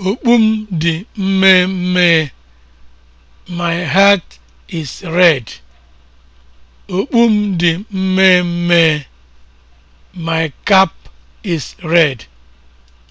Okpu m dị mmee My hat is red. Okpu m dị mmee My cap is red.